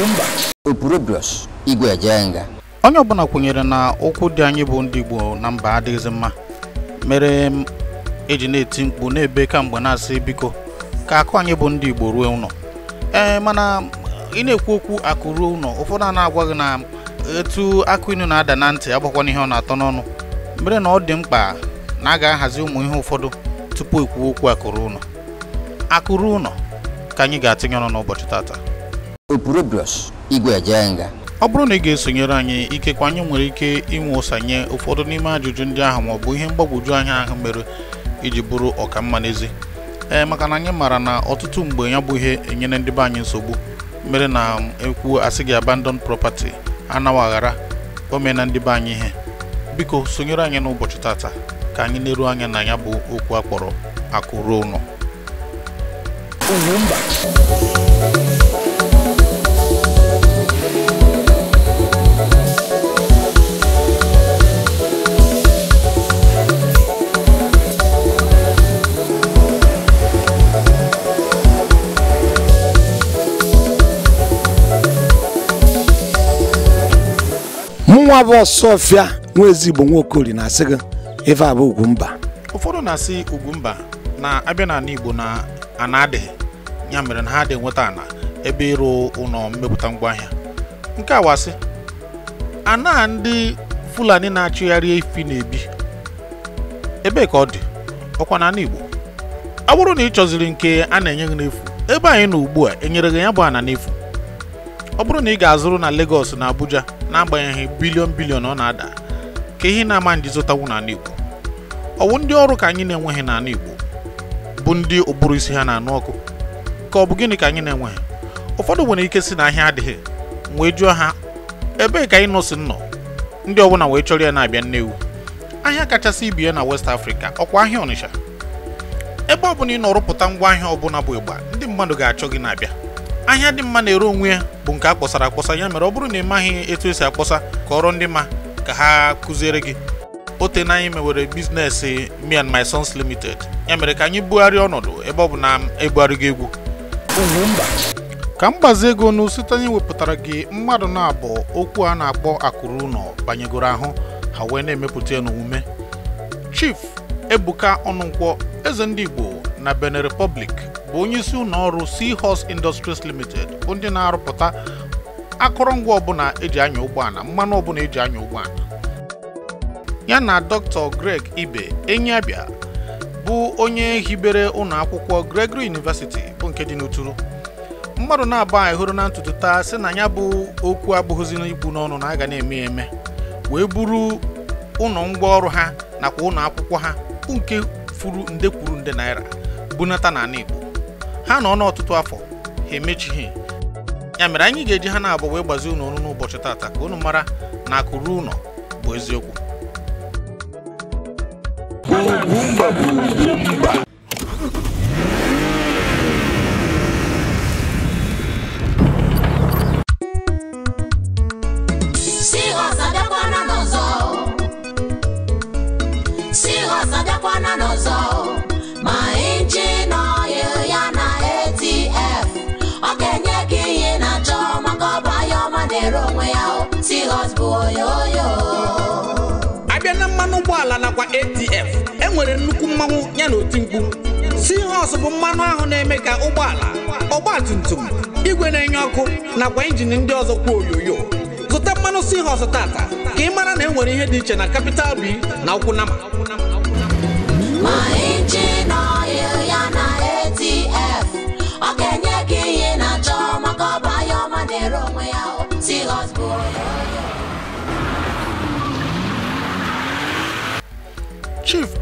mba opurobrios igwe onye ọbụla kwenyere na ụkwụ dị anyị bụ ndị Igbo na mba adịghịzị mma mere m eji na-eti mkpu na-ebe kamgbe na-asị biko ka akụ anyị bụ ndị Igbo ruo ụlọ ee mana ị na-ekwu okwu akụ ruo ụlọ ụfọdụ a na-agwa gị na etu akụ inu na-ada na ntị agbakwana ihe ọ na-atọ n'ọnụ mere na ọ dị mkpa na a ga-ahazi ụmụ ihe ụfọdụ tupu ekwuo okwu akụrụ ụlọ akụrụ ka anyị ga-atịnye ọnụ n'ụbọchị tata opurobios igwe ọ bụrụ na ị ga-esonyere anyị ikekwa anyị nwere ike inwe ụsanye ụfọdụ n'ime ajụjụ ndị ahụ maọbụ ihe mgbagwoju anya ahụ mere iji bụrụ mma n'ezi ee maka na anyị maara na ọtụtụ mgbe ya bụ ihe enyere ndị be anyị nsogbu mere na ekwu asị gị abandon property anaghị aghara omena na ndị be anyị ihe biko sonyere anyị n'ụbọchị tata ka anyị na-eru anya na ya bụ okwu akpọrọ akụ ruo ụlọ nwa bụ ọsọfịa nwa ezigbo nwaokori na-asị gị ife abụ mba. ụfọdụ na-asị mba na abịa n'ala Igbo na ana ya mere na ha adịghị nweta ana ebe ịrụ ụlọ mmepụta ngwaahịa nke awasị ana ndị Fulani na-achụgharị efi na-ebi ebee ka ọ dị ọkwa na ala Igbo ọ bụrụ na ị chọziri nke a na-enye gị n'efu ebe anyị nọ ugbu a enyere gị ya bụ ana n'efu ọ bụrụ na ị ga-azụrụ na Lagos na Abuja n'agbanyeghị bilion bilion ọ na-ada ka ihe na-ama ndị zụtawu n'ala Igbo ọwụ ndị ọrụ ka anyị na-enweghị n'ala Igbo bụ ndị ụbụrụ isi ha na-anụ ọkụ ka ọ bụ gịnị ka anyị na-enweghị ụfọdụ nwere ike si na ahịa adịghị wee jụọ ha ebee ka anyị nọsi nnọ ndị ọbụla wee chọrọ ya na-abịa nnewu ahịa kachasị ibie na West Africa ọkwa ahịa Ọnịsha ebe ọ bụla ị nọ ngwa ahịa ọbụla bụ ịgba ndị mmadụ ga-achọ gị na-abịa ahịa dị mma na-ere onwe ya bụ nke a kpọsara akpọsa ya mere ọ bụrụ na ị maghị etu esi akpọsa kọrọ ndị ma ka ha kụziere gị ote na anyị mewere biznes me and my sons limited ya mere ka anyị bugharịa ọnọdụ ebe ọ bụ na ebugharịgo egwu ka mgbazi ego ọnụ site anyị wepụtara gị mmadụ na-abụ okwu a na-akpọ akụrụ ụlọ banyegoro ahụ ha wee na-emepụta ya n'omume chief ebuka ọnụnkwọ eze ndị igbo na benin republic bụ onye isi ụlọ ọrụ Seahorse Industries Limited bụ ndị na-arụpụta akụrụngwa ọbụla eji anya ụgbọala mmanụ ọbụla eji anya ụgbọala ya na Dr. Greg Ibe Enyiabịa bụ onye hibere ụlọ akwụkwọ Gregory University bụ nke dị n'Uturu mmadụ na aba anyị na ntutu taa sị na ya bụ okwu abụghịzi ibu n'ọnụ na aga na-eme ya eme wee buru ụlọ ngwaọrụ ha nakwa ụlọ akwụkwọ ha nke furu nde kwuru nde naira bunata n'ala Igbo ha nọ n'ọtụtụ afọ ha emechighị ya mere anyị ga-eji ha na-abụ wee gbazi unu ọnụ n'ụbọchị taata ka unu mara na akụ ruo ụlọ bụ eziokwu abịa na mmanụ ụgbọala nakwa atf enwere nnukwu mmanwụ ya na oti mkpu sihos bụ mmanụ ahụ na-eme ka ụgbọala tum igwe na-enye ọkụ nakwa injin ndị ọzọ kwuo oyoyo zụta mmanụ sihos tata ka ị mara na enwere ihe dị iche na kapital b na ụkwụnama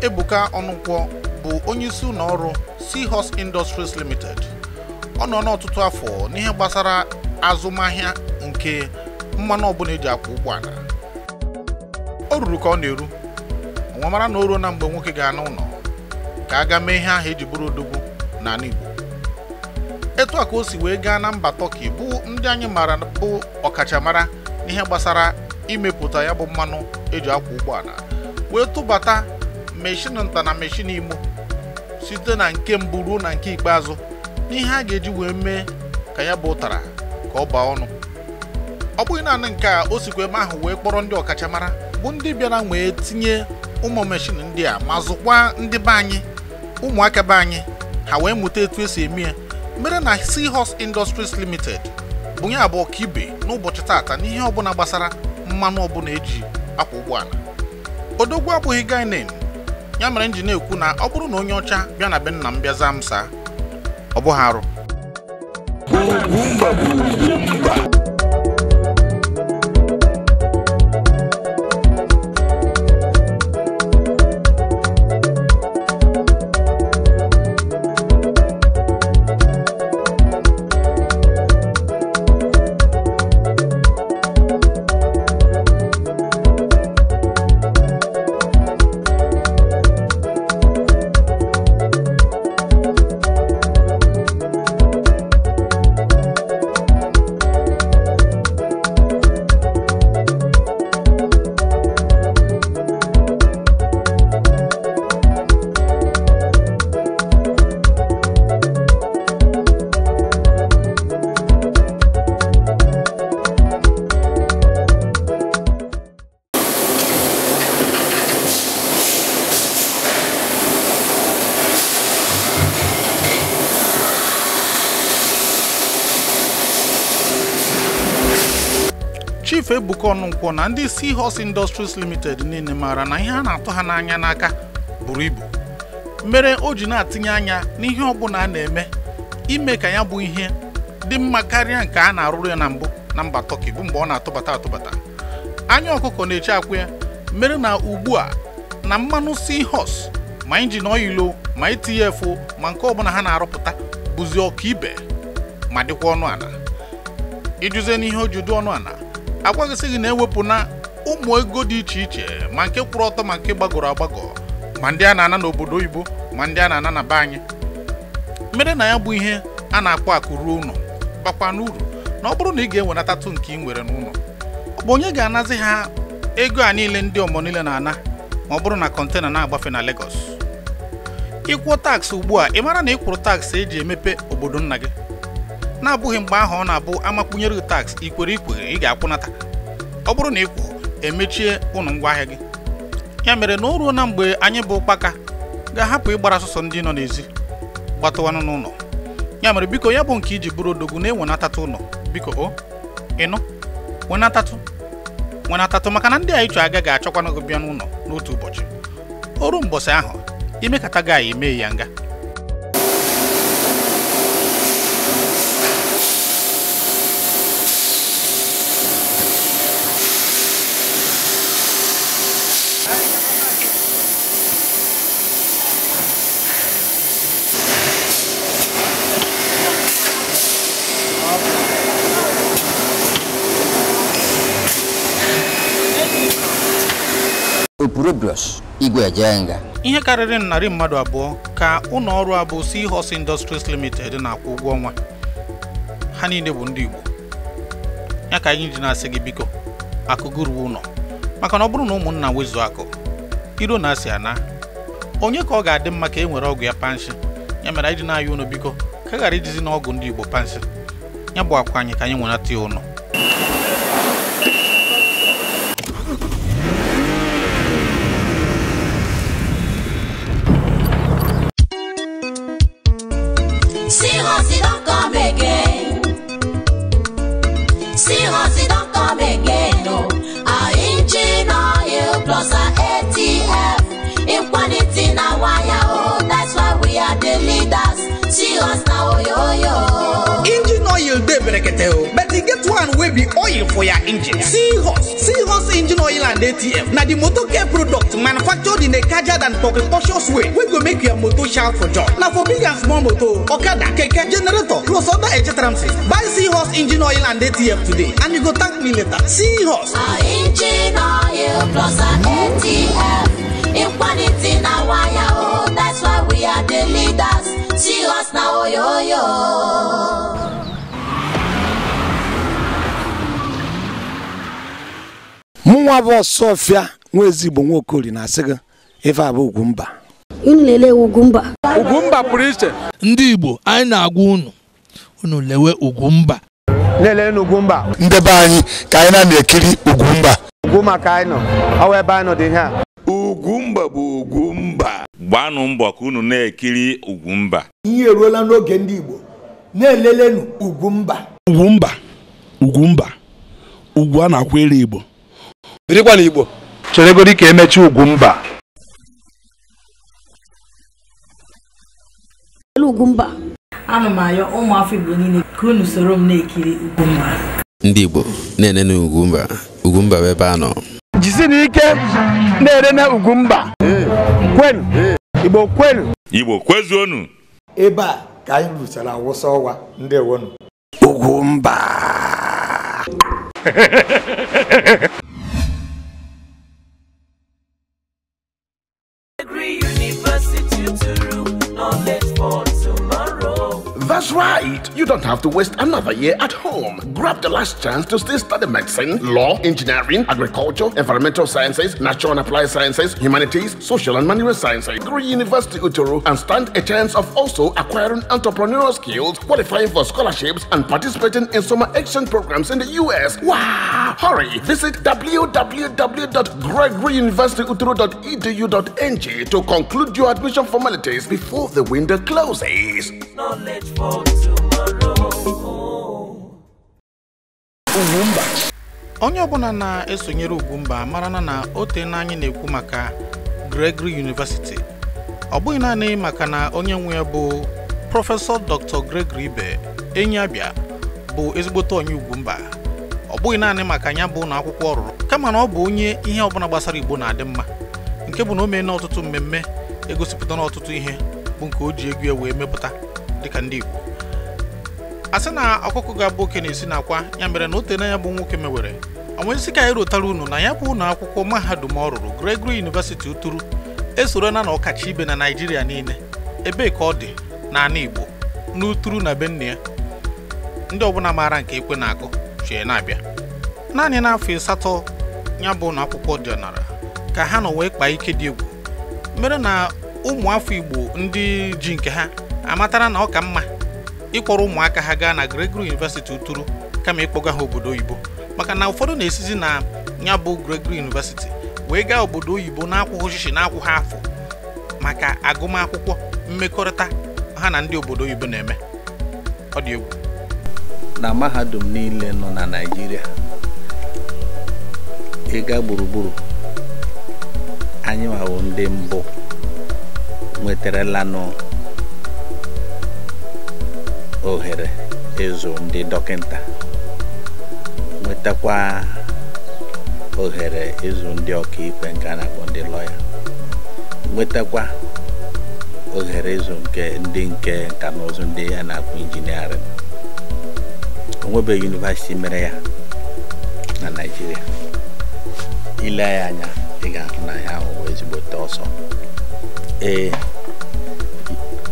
Ebuka Ọnụkwọ bụ isi ụlọ ọrụ Seahorse Industries Limited ọ nọ n'ọtụtụ afọ n'ihe gbasara azụmahịa nke mmanụ ọbụla eji akwụ ụgbọala o ruru ka ọ na-eru nwa mara na o ruo na mgbe nwoke ga-ana ụlọ ka a gaa mee ihe ahụ eji bụrụ odogwu n'ala Igbo etu a ka o si wee gaa na mba Tọki bụ ndị anyị maara bụ ọkachamara n'ihe gbasara imepụta ya bụ mmanụ eji akwụ ụgbọala wee tụbata meshin nta na meshin imo site na nke mbụ ruo na nke ikpeazụ n'ihe a ga-eji wee mee ka ya bụ ụtara ka ọ baa ọnụ ọ bụghị naanị nke a o sikwa ebe ahụ wee kpọrọ ndị ọkachamara bụ ndị bịara wee tinye ụmụ meshin ndị a ma zụkwa ndị be anyị ụmụaka be anyị ha wee mụta etu esi eme ya mere na Seahorse Industries Limited bụ ya bụ ọkaibe n'ụbọchị tata n'ihe ọbụla gbasara mmanụ ọbụla eji akwa ụgbọala odogwu abụghị gainin ya mere m na-ekwu na ọ bụrụ na onye ọcha bịa na be nna m bịa zaa m saa ọ bụghị arụ ọnụ nkwọ na ndị hos Industries Limited niile maara na ihe a na-atụ ha n'anya n'aka buru ibu mere o ji na atinye anya n'ihe ọbụla a na-eme ime ka ya bụ ihe dị mma karịa nke a na-arụrụ ya na mbụ na mba tọki bụ mgbe ọ na-atụbata atụbata anya ọkụkọ na-eche akwụ ya mere na ugbu a na mmanụ hos ma injin oilo ma itinye efu ma nke ọbụla ha na-arụpụta bụzi ọka ibe ma dịkwa ọnụ ala ijụzie n'ihe o ji dị ọnụ ala agwaghịsị gị na-ewepụ na ụmụ ego dị iche iche ma nke kwụrụ ọtọ ma nke gbagọrọ agbagọ ma ndị a na-ana n'obodo oyibo ma ndị a na-ana na be anyị mere na ya bụ ihe a na-akpọ akụ ruo ụlọ bakwa n'uru na ọ bụrụ na ị ga enwenatatụ nke ị nwere n'ụlọ ọ bụ onye ga-anazi ha ego a niile ndị ọmọ niile na-ana ma ọ bụrụ na kọntena na-agbafe na Lagos ịkwụọ taks ugbu a ị mara na ịkwụrụ taks eji emepe obodo nna gị na-abụghị mgbe ahụ ọ na-abụ amakwunyere taks ikwere ikwere ị ga-akwụnata ọ bụrụ na ị kwụ emechie ụnụ ngwaahịa gị ya mere na o ruo na mgbe anyị bụ ụkpaka ga-ahapụ ịgbara sọsọ ndị nọ n'ezi gbatụwanụ n'ụlọ ya mere biko ya bụ nke iji bụrụ odogwu na-enwenatatụ ụlọ biko o ịnụ wenatatụ wenatatụ maka na ndị a ịchọ agaghị achọkwanụ gị bịa n'ụlọ n'otu ụbọchị o ruo mbọsị ahụ imekata gị anyị mee ya nga Opurobios Igwejenga ihe karịrị narị mmadụ abụọ ka ụlọ ọrụ a bụ Seahorse Industries Limited na-akwụ ụgwọ ọnwa ha niile bụ ndị Igbo ya ka anyị ji na-asị gị biko akụgụruwe ụlọ maka na ọ bụrụ na ụmụnna wezuo akụ iro na-asị ana onye ka ọ ga-adị mma ka e nwere ọgwụ ya panshi ya mere anyị dị na-ayọ ụlọ biko ka e ghara ijizi na ọgwụ ndị Igbo panshi ya bụ akwa anyị ka anyị nwere ata ya ụlọ. breketeo but e get one wey be oil for your engine seahorse seahorse engine oil and atf na di motor care product manufactured in a cajard and precocious way wey go make your motor shout for joy na for big and small motor okada keke generator plus other etc buy seahorse engine oil and atf today and you go thank me later seahorse engine oil plus and atf in quality na wire oh that's why we are the leaders see us na oyoyo. mụnwa bụ ọsọfịa nwa ezigbo nwa okori na-asị gị ife abụ Ugwumba unu lelee Ugwumba pụrụ iche ndị Igbo anyị na-agwa unu unu lewe Ugwumba lelee n'Ugwumba ndị be anyị ka anyị na-ekiri Ugwumba ugwu maka anyị nọ ọwa ebe anyị nọ dị a Ugwumba bụ Ugwumba gbanụ mbọ ka unu na-ekiri Ugwumba ihe eruola n'oge ndị Igbo na-elelenu Ugwumba Ugwumba Ugwumba ugwu a na-akwụ ere Igbo birikwa na igbo cheregodi ka emechi Ugwumba Ugwumba ana m ayọ ụmụafọ igbo niile ka unu soro m na-ekiri Ugwumba ndị igbo na-enene Ugwumba Ugwumba bụ ebe a nọ jisi na ike na-enene Ugwumba kwenu igbo kwenu igbo kwezuonu ebe a ka anyị ruchara awụsa ọwa ndị ewonu Ugwumba University to that's right. You don't have to waste another year at home. Grab the last chance to still study medicine, law, engineering, agriculture, environmental sciences, natural and applied sciences, humanities, social and manual sciences, Green University Uturu, and stand a chance of also acquiring entrepreneurial skills, qualifying for scholarships, and participating in summer exchange programs in the US. Wow! Hurry! Visit www.gregoryuniversityuturu.edu.ng to conclude your admission formalities before the window closes. Knowledge for onye ọbụla na-esonyere Ugwumba marana na ote na anyị na-ekwu maka Gregory University ọ bụghị naanị maka na onye nwe ya bụ prọfesọ Dr. Gregory Ibe enyi abịa bụ ezigbote onye Ugwumba ọ bụghị naanị maka ya bụ na akwụkwọ ọ kama na ọ bụ onye ihe ọbụla gbasara Igbo na-adị mma nke bụ na o mee na ọtụtụ mmemme egosipụta n'ọtụtụ ọtụtụ ihe bụ nke o ji egwu ya wee mepụta dịka ndị Igbo a sị na ọkụkọ ga-abụ oke na-esi na akwa ya mere na ote n'anya bụ nwoke mewere onwezi ka anyị rotara unu na ya bụ ụlọ akwụkwọ mahadum ọ rụrụ Gregory University Uturu esorona na ọkacha ibe na naijiria niile ebee ka ọ dị n'ala Igbo n'Uturu na benna ya ndị ọbụla maara nke ekwe na-akụ chie na-abịa naanị n'afọ asatọ ya bụ na akwụkwọ ọdịnala ka ha nọ wee kpaa ike dị egwu mere na ụmụ afọ Igbo ndị ji nke ha amatara na ọ ka mma ịkpọrọ ụmụaka ha gaa na Gregory University Uturu kama ịkpọga ha obodo oyibo maka na ụfọdụ na-esizi na ya bụ Gregory University wee gaa obodo oyibo na-akwụghị ọchịchị na akwụghị afọ maka agụmakwụkwọ mmekọrịta ha na ndị obodo oyibo na-eme ọ dị egwu na mahadum niile nọ na Naịjirịa ịga gburugburu anyị nwawo ndị mbụ nwetarala ohere ịzụ ndị dọkịta nwetakwa ohere ịzụ ndị ọkaikpe nke a na-akpọ ndị lọya nwetakwa ohere ịzụ nke ndị nke nka na ụzụ ndị ya na-akpọ injiniarịn onwebeghị yunivasiti mere ya na naijiria ile ya anya ị ga-ahụ na ya ahụ ezigbote ọsọ ee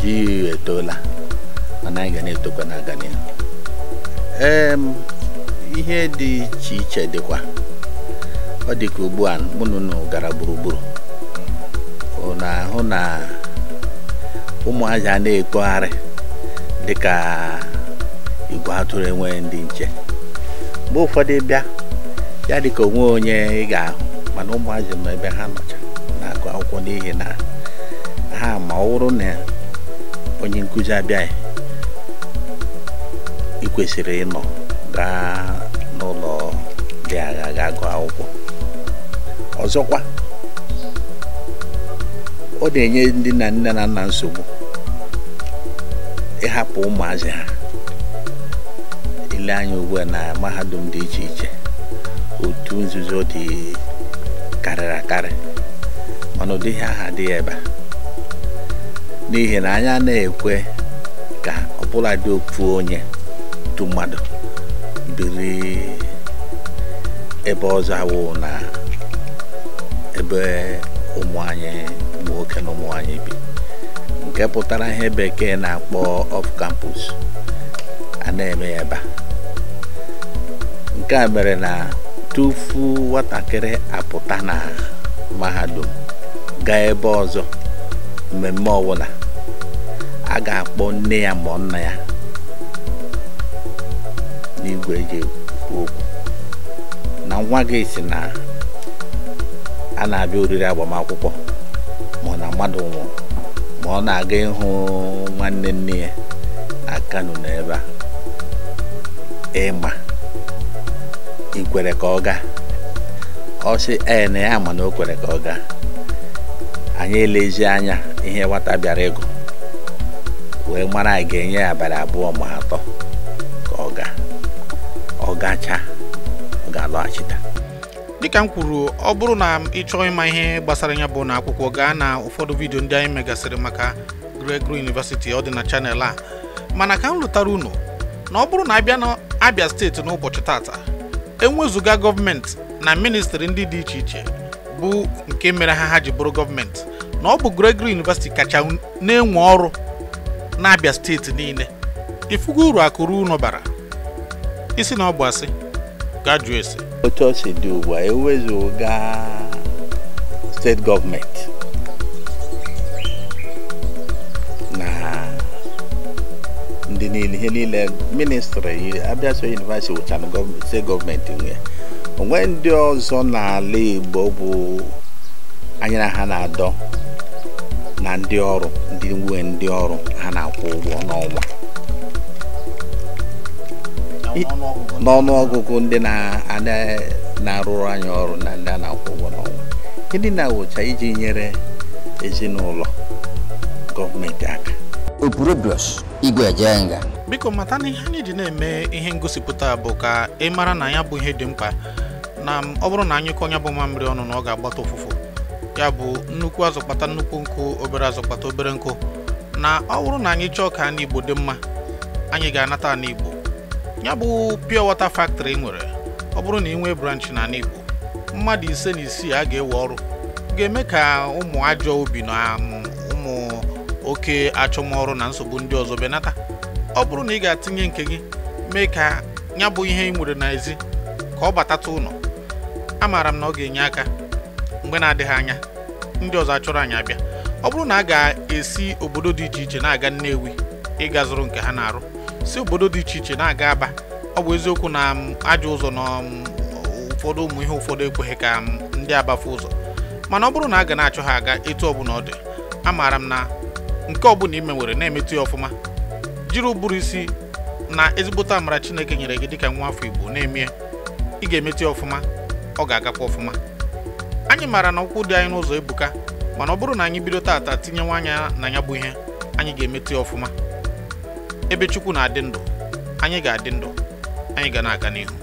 ji etoola anaghị ga na-etokwa na-aga n'ihu ihe dị iche iche dịkwa ọ dị ka ugbu a mụ gara gburugburu na ahụ na ụmụazị a na-etogharị dịka igwe atụrụ enweghị ndị nche mgbe ụfọdụ bịa ya dị ka onwe onye ị ahụ mana ụmụazị ma ebe ha nọcha na-agụ akwụkwọ n'ihi na ha ma ọ bụrụ na onye nkụzi abịaghị kwesịrị ịnọ gaa n'ụlọ dị agha gaa gụọ akwụkwọ ọzọkwa ọ na-enye ndị na nne na nna nsogbu ịhapụ ụmụazị ha ile anya ugbu na mahadum dị iche iche otu nzuzo dị karịrị akarị mana ụdịghị aha dị ebe n'ihi na anya anaghị ekwe ka ọbụladị dị ofu onye otu mmadụ biri ebe ọzọ awụ na ebe ụmụ anyị ma nwoke na ụmụ anyị bi nke pụtara ihe bekee na-akpọ off campus a na-eme ya ebe nke a mere na tufu nwatakịrị apụta na mahadum gaa ebe ọzọ mmemme ọbụla a ga-akpọ nne ya ma nna ya n'igwe gị okwu na nwa gị si na a na-abịa oriri agbamakwụkwọ ma na mmadụ nwụrụ ma ọ na-aga ịhụ nwanne nne ya na Kano na ebe a ịma ikwere ka ọ gaa ọ sị ee na ya ma na o kwere ka ọ gaa anyị elezi anya ihe nwata bịara ịgụ wee mara anyị ga-enye abalị abụọ ma atọ gacha ga-alọghachita dịka m kwuru ọ bụrụ na ị chọọ ịma ihe gbasara ya bụ na akwụkwọ gaa na ụfọdụ vidio ndị anyị megasịrị maka Gregory University ọ dị na chanel a mana ka m lụtara unu na ọ bụrụ na abịa na Abia steeti n'ụbọchị tata enwezụga gọọmenti na ministri ndị dị iche iche bụ nke mere ha ha ji bụrụ gọọmenti na ọ bụ Gregory University kacha na-enwe ọrụ na Abia steeti niile ifugo uru akụrụ unu bara isi na ọ bụ asị gaa jụọ ese otu ọ dị ugbu a ewezuga steeti gọọmenti na ndị niile ihe niile ministri abịa so yunivasiti wụchana steeti gọọmenti nwe onwe ndị ọzọ n'ala Igbo bụ na ha na-adọ na ndị ọrụ ndị nwe ndị ọrụ ha na-akwụ ụgwọ n'ọnwa n'ọnụ ọgụgụ ndị na-arụrụ anyị ọrụ na ndị a na-akwụ ụgwọ n'ọnwa gịnị na-awụcha iji nyere ezinụlọ gọọmenti aka biko mata na ihe anyị ji na-eme ihe ngosipụta bụ ka ị mara na ya bụ ihe dị mkpa na ọ bụrụ na anyị kọnya bụ mamịrị ọnụ na ọ ga-agbata ụfụfụ ya bụ nnukwu azụkpata nnukwu nkụ obere azụ obere nkụ na ọ bụrụ na anyị chọọ ka na igbo dị mma anyị ga-anata na igbo ya bụ pure water factory nwere ọ bụrụ na ị nwee branch na igbo mmadụ ise na isii a ga-ewe ọrụ ga-eme ka ụmụ ajọ obi na um, ụmụ oke achọmọrụ na nsogbu ndị ọzọ benata ọ bụrụ na ị ga-atinye nke gị mee ka ya bụ ihe ị nwere n'ezi ka ọ batata ụlọ amaara m na ọ ga-enye aka mgbe na-adịghị anya ndị ọzọ achọrọ anyị abịa ọ bụrụ na a ga-esi obodo dị iche iche na-aga Nnewi ịga zụrụ nke ha na-arụ si obodo dị iche iche na-aga aba ọ bụ eziokwu na um, ajọ ụzọ na um, ụfọdụ ụmụ ihe ụfọdụ ekweghị ka um, ndị abafu ụzọ mana ọ bụrụ na a ga na-achọ ha aga etu ọbụla ọ dị maara m na nke ọbụla ime nwere na-emetụ ya ọfụma jiri ụbụrụ isi na ezigbote amara Chineke nyere gị dịka nwa afọ Igbo na eme ị ga-emetụ ya ọfụma ọ ga-agakwa ọfụma anyị maara na ụkwụ dị anyị n'ụzọ ebuka mana ọ bụrụ na anyị bido tata tinyewa anya na ya bụ ihe anyị ga-emetụ ya ọfụma ebe chukwu na-adị ndụ anyị ga-adị ndụ anyị ga na-aga n'ihu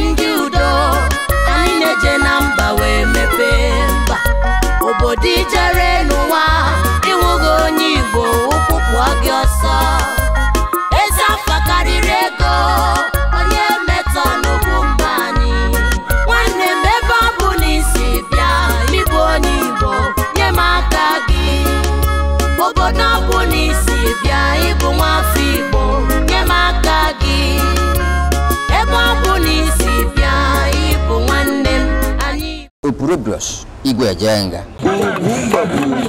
ndị udo anyị na-eje na mba wee mepee mba obodo ijere y